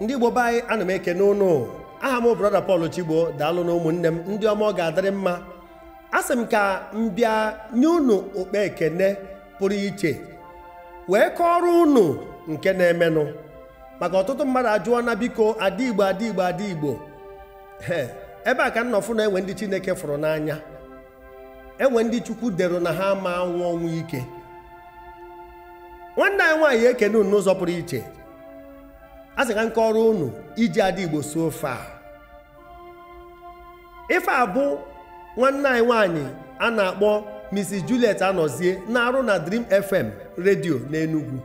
ndị igbo be anyị ana m ekene ụnụ aha m brọda Paul Chigbo daalụ na ụmụnne m ndị ọma ọ ga-adịrị mma a sị m ka m bịa nye unu okpe ekene pụrụ iche wee kọọrọ ụnụ nke na-emenụ maka ọtụtụ mmadụ ajụọ na biko adịgbo adịgbo adịgbo ebe a ka nnọfụ na enwe ndị chineke fụrụ n'anya enwe ndị chukwu dero na ha ma anwụ ọnwụ ike nwanne anyị nwaanyị ekene ụnụ n'ụzọ pụrụ iche a sị ka nkọrọ unu iji ada igbo so ofe a ife a bụ nwanne anyị nwanyị a na-akpọ Mrs. Juliet Anozie na-arụ na Dream FM redio na Enugu.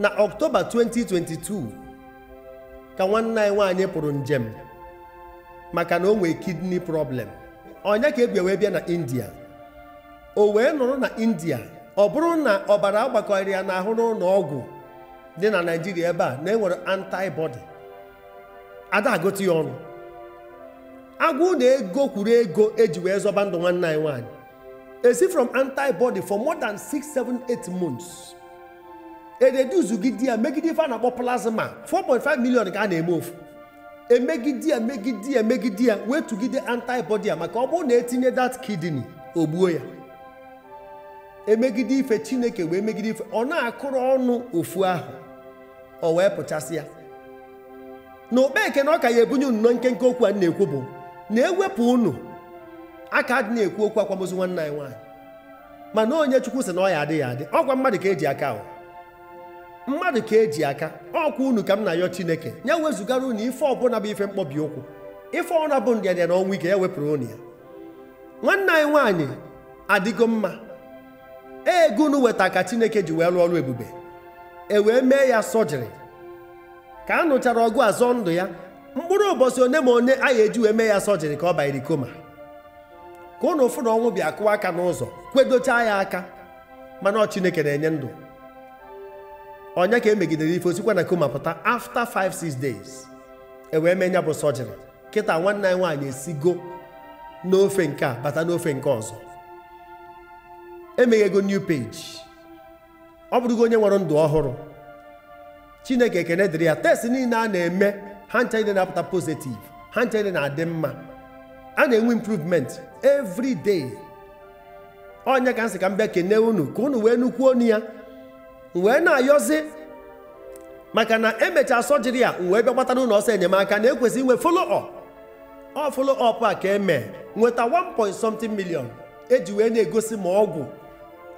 na Ọktoba 2022 ka nwanne anyị nwaanyị pụrụ njem maka na o nwee kidney problem onye ka ebia wee bịa na India o wee nụrụ na India ọ bụrụ na ọbara agbakọrọ ya n'ahụ n'ụlọ ọgwụ dị na naijiria ebe a na enwere antibody ada ya ọnụ agwụ na ego kwuru ego eji wee zọba ndụ nwanne anyị nwaanyị esi from antibody for more than 678 months ededuzugide ya megide ife a na-akpọ plasma 4.5 million ka a na-eme ofu emegide ya megide ya megide ya wee tụgide antibody ya maka ọ bụrụ na etinye that kidney ogbuo ya emegide ife chineke wee megide ife ọ na-akụrụ ọnụ ofu ahụ o wee pụchasịa na okpeke na ọ ka ya ebunye unu na nkenke okwu a na-ekwu bụ na ewepụ unu aka dị na-ekwu okwu akwamozu nwanne anyị nwaanyị mana onye chukwu sị na ọ ya adịghị adị ọkwa mmadụ ka eji aka ahụ mmadụ ka eji aka ọkwa unu ka m na-ayọ chineke ya wezugara unu ife ọbụla bụ ife mkpọbi ụkwụ ife ọna bụ ndịadịa na ọnwa ike ya wepụrụ unu ya nwanne anyị nwaanyị adịgo mma ego unu weta ka chineke ji wee rụọ ọrụ ebube e wee mee ya sọjiri ka a nụchara ọgụ azọ ndụ ya mkpụrụ ụbọchị one ma one a eji wee mee ya sojiri ka ọ banyere koma ka ụnụ ụfụ na ọnwụ bịa kụọ aka n'ụzọ kwedochaa ya aka mana ọ chineke na-enye ndụ onye ka emegidere ife osikwa na koma pụta afta 5-6 days e wee mee ya bụ sọjiri kịta nwanne anyị nwaanyị esigo n'ofe nke a bata n'ofe nke ọzọ emeghego new page ọ bụrụgo onye nwere ndụ ọhụrụ chineke ekene dịrị ya test niile a na-eme ha ncha niile na-apụta pozitiv ha ncha niile na-adị mma a na-enwe improvement every onye ka nsị ka m bịa kene unu ka unu wee nukwuo onu ya wee na-ayọzi maka na emechaa sọjiri ya wee bịa gbatara ụlọ ọsọ enyemaka na ekwesị inwe follow up ọ follow up a ka eme nweta 1 point something million eji wee na-egosi ma ọgwụ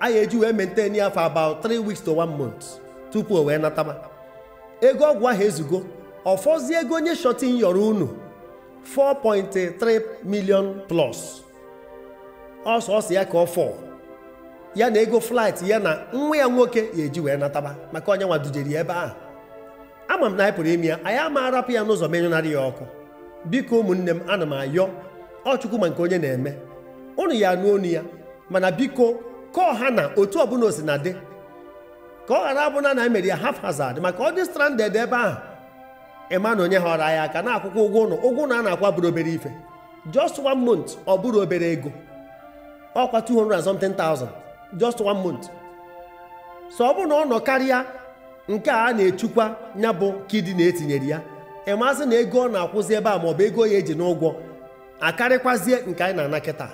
a ga-eji wee maintain ya for about 3 weeks to 1 month tupu o wee nataba ego ọgwụ ahụ ezugo ọfọzie ego onye shọtin yọrọ unu 4.3 million plus ọsọ ọsọ ya ka ọ fọ ya na ego flight ya na nwa ya nwoke ya eji wee nataba maka onye nwa dujeri ya ebe ahụ ama m na anyị pụrụ ime ya anyị ama arapụ ya n'ụzọ menyụnarị ya ọkụ biko ụmụnne m ana m ayọ ọchukwu ma nke onye na-eme unu ya anụ onu ya mana biko ka ọha na otu ọbụla osi dị ka ọ ghara abụna na emere ya haphazard maka ọ dị stranded ebe ahụ ịma na onye họrọ ya aka na-akwụkwọ ụgwọ ụnụ ụgwọ ụnụ a na-akwa bụrụ obere ife just one month ọ bụrụ obere ego ọkwa 200 just one month so ọ bụrụ na ọ nọ karịa nke a na-echukwa ya bụ kidi na-etinyere ya ịmasị na ego ọ na-akwụzi ebe a maọbụ ego ya eji n'ụgwọ akarịkwazie nke anyị na-ana kịta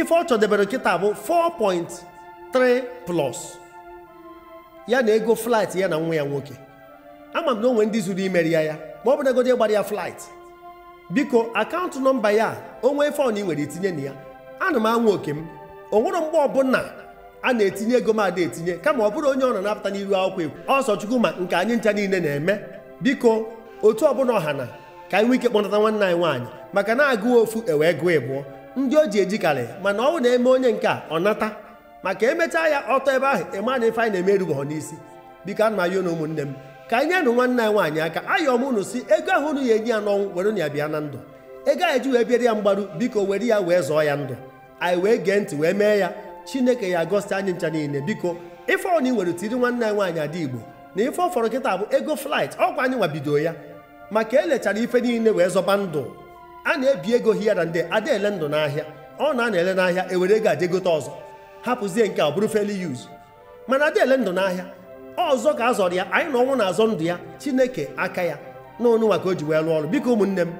ife ọ chọdebere nkịta bụ 4.3 plus ya na ego flight ya na nwa ya nwoke ama m na onwe ndị zuru imeri ya ya ma ọ bụ na ego gbara ya flight biko akaụntụ nọmba ya onwe ife ọna ị nwere itinye na ya ana m anwụ oke m onwere mgbe ọbụla a na-etinye ego m ada etinye kama ọ bụrụ onye ọ nọ na-apụta n'iru akwụkwọ ekwu ọsọ chukwu ma nke anyị ncha niile na-eme biko otu ọbụla ọha na ka anyị nwee ike kpọnata nwanne anyị nwaanyị maka na agụ ofu ewee gụọ ịbụọ ndị o ji ejikarị mana ọ na-eme onye nke a ọ nata maka emechaa ya ọtọ ebe ahụ ịma na ife anyị na-emeruba ha n'isi biko ana ya na ụmụnne m ka anyị nyanụ nwanne anyị nwaanyị aka ayọm unu si ego ahụ unu ya enye ya n'ọnwụ were ya bịa na ndụ ego ahụ ji wee bịara ya mgbaru biko were ya wee zọọ ya ndụ anyị wee gee ntị wee mee ya chineke ya gosi anyị ncha niile biko ife ọna i were tiri nwanne anyị nwaanyị ada igbo na ife ọ fọrọ kịta bụ ego flight ọkwa anyị nwabido ya maka elechara ife niile wee zọba ndụ a na-ebi ego hia na ndị ada ele ndụ n'ahịa ọ na a ele n'ahịa ewere ego aje gote ọzọ hapụzie nke a bụrụ feli yuz mana ada ele ndụ n'ahịa ọzọ ka a zọrọ ya anyị na ọnwụ na-azọ ndụ ya chineke aka ya na onunwa ka o ji wee lụọ ọrụ biko ụmụnne m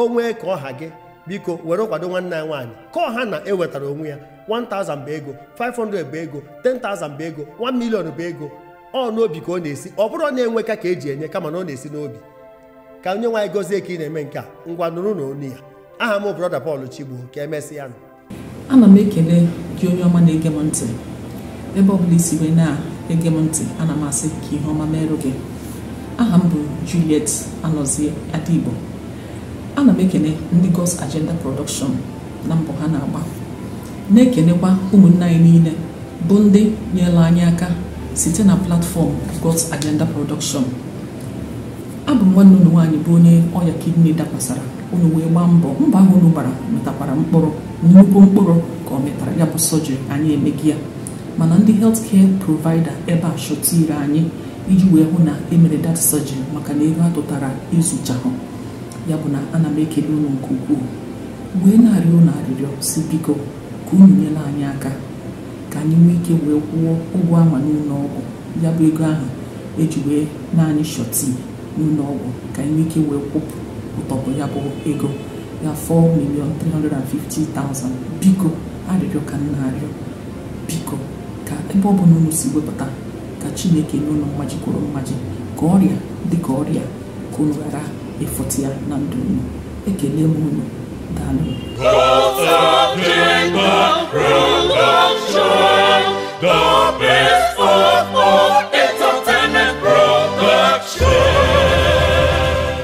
o nwee ka ọha gị biko were kwado nwanne ya nwaanyị ka ọha na-ewetara onwe ya 1000 bụ ego 500 bụ ego 10000 bụ ego 1 million bụ ego ọ n'obi ka ọ na-esi ọ bụrụ na-enwe ka ka e eji enye kama na ọ na-esi n'obi ka onye nwaanyị gozie ka ị na-eme nke a ngwa nụrụ na onu ya aha m broda Paul chigbu ka emesịa nụ ana m ekele gị onye ọma na-ege m ntị ebe ọbụla isi wee na-ege m ntị ana m asị ka ihe ọma merụ gị aha m bụ Juliet anọzie Adigbo ana m ekele ndị gos Agenda Production na mbọ ha na-agba na-ekelekwa ụmụnne anyị niile bụ ndị nyela anyị aka site na platfọm gos Agenda Production abụ m nwanne unu nwaanyị bụ onye ọya kidney dakwasara unu wee gbaa mbọ mbọ ahụ unu gbara metakwara mkpụrụ nnukwu mkpụrụ ka ọ metara ya bụ sọjiri anyị emegi ya mana ndị helt kee provaida ebe a shọtire anyị iji wee hụ na emere dat sọjiri maka na ego atụtara ezuchahụ ya bụ na ana m ekele unu nke ukwuu wee na-arịọ unu arịrịọ si biko ka unu nyela anyị aka ka anyị nwee ike wee kwụọ ụgwọ ama n'ụlọ ọgwụ ya bụ ego ahụ eji wee naanị shọtii n'ụlọ ọgwụ ka enwe ike wee kwụpụ ụtọpụ ya bụ ego ya 4 milion 350,000 biko arịrịọ ka nna arịọ biko ka ebe ọ bụla unu si wepụta ka chineke n'ụlọ unu mmaji kwuru mmaji ka ọrịa dịka ọrịa ka unu ghara ịfụtụ ya na ndụ unu ekele m unu daalụ